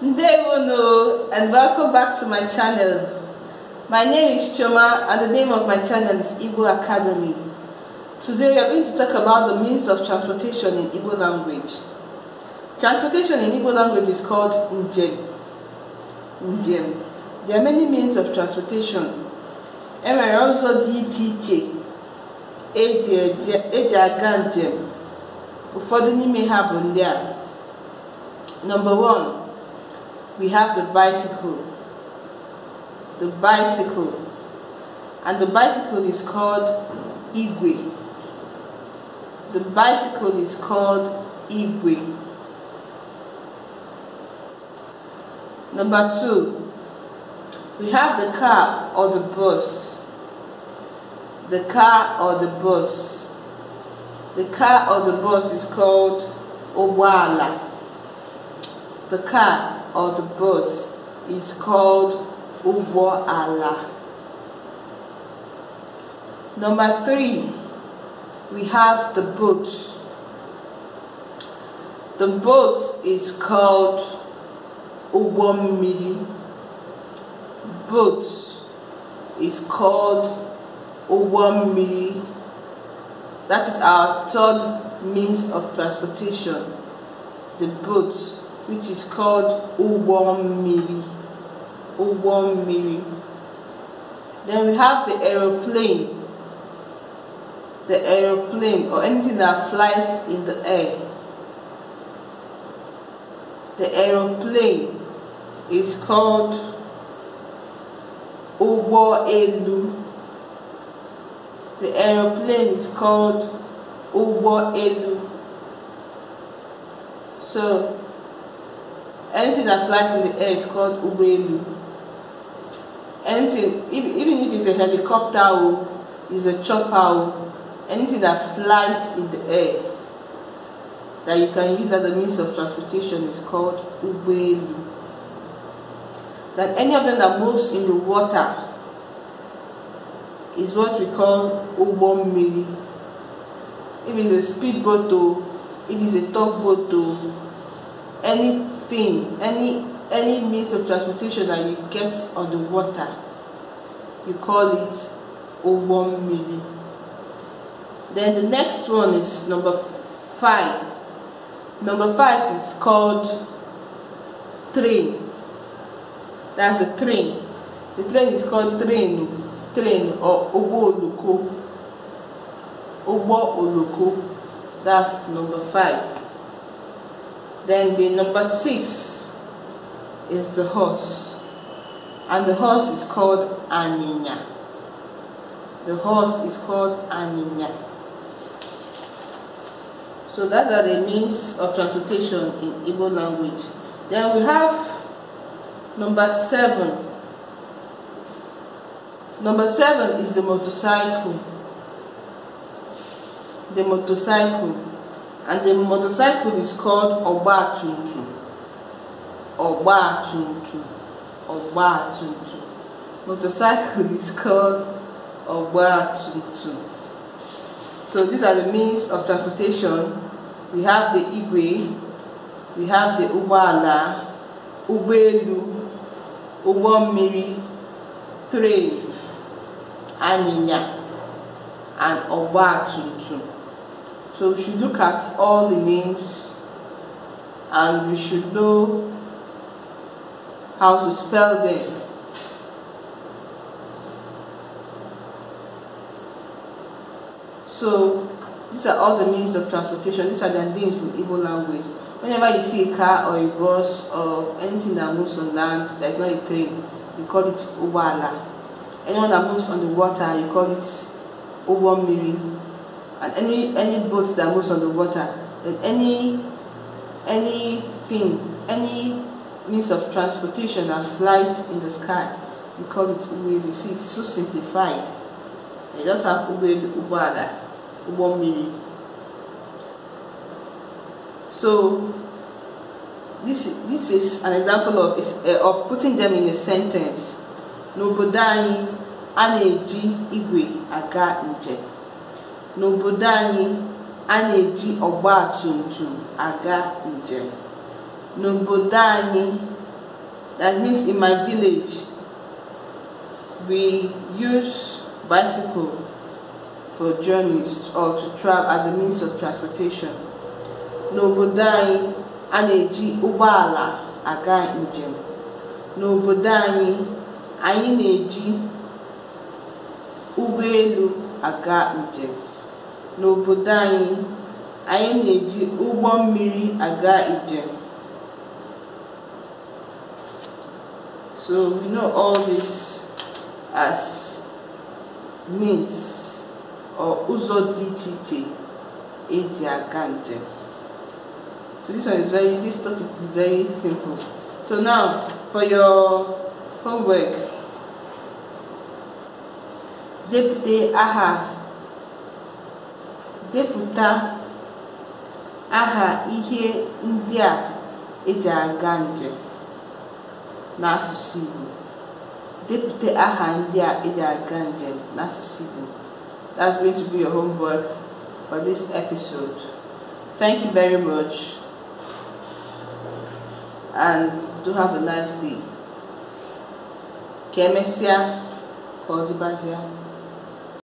Ndevono and welcome back to my channel. My name is Choma and the name of my channel is Igbo Academy. Today we are going to talk about the means of transportation in Igbo language. Transportation in Igbo language is called njem. Njem. There are many means of transportation. and nwere also dtj iche iche eji aga njem. Ụfọdụ n'ime Number one, we have the bicycle. The bicycle. And the bicycle is called Igwe. The bicycle is called Igwe. Number two, we have the car or the bus. The car or the bus. The car or the bus is called obwala. The car or the bus is called Ubo Allah. Number three, we have the boat. The boat is called Uwomili. Boat is called Uwomili. That is our third means of transportation, the boat which is called Ubon Miri. Ubon Miri. Then we have the aeroplane. The aeroplane or anything that flies in the air. The aeroplane is called Ubo Elu. The aeroplane is called Ubo Elu. So anything that flies in the air is called ubelu anything even if it's a helicopter oh, it's a chopper oh, anything that flies in the air that you can use as a means of transportation is called ubelu that any of them that moves in the water is what we call ubo if it's a speedboat or oh, if it's a tugboat or any any any means of transportation that you get on the water, you call it Owon Then the next one is number five. Number five is called train. That's a train. The train is called train, train or Obo Oloko. Obo Oloko. That's number five. Then the number six is the horse. And the horse is called Aninya. The horse is called Aninya. So that are the means of transportation in Igbo language. Then we have number seven. Number seven is the motorcycle. The motorcycle and the motorcycle is called Ogba Tuntu. Ogba Tuntu. Ogba Tuntu. Motorcycle is called Ogba Tuntu. So these are the means of transportation. We have the Igwe, we have the Ubala, Ubelu, Ubomiri, Train, Aninya, and Ogba Tuntu. So we should look at all the names and we should know how to spell them. So these are all the means of transportation. These are the names in Igbo language. Whenever you see a car or a bus or anything that moves on land, that is not a train, you call it Ubala. Anyone that moves on the water, you call it Uwamiri and any any boat that moves on the water, and any anything, any means of transportation that flies in the sky. We call it Uwelu. See, it's so simplified. You just have Uwelu, Ubada, Ubomiri. So this this is an example of uh, of putting them in a sentence. N'obodo aneji igwe aga n'obodo anyị a na-eji ọgba aga njem n'obodo anyị that means in my village we use bicycle for journeys or to travel as a means of transportation n'obodo anyị a na-eji ụgbọala aga njem n'obodo anyị anyị na-eji ụgbọelu aga njem N'obodo anyị, anyị na-eji ụgbọ mmiri aga njem. So we know all this as means or ụzọ dị iche iche eji aga njem. So this one is very, this topic is very simple. So now for your homework, depụta aha Depụta aha ihe ndị a eji aga njem n'asụsụ Igbo. Depụta aha ndị a eji aga njem n'asụsụ Igbo. That's going to be your homework for this episode. Thank you very much and do have a nice day. Ka emesịa ka ọ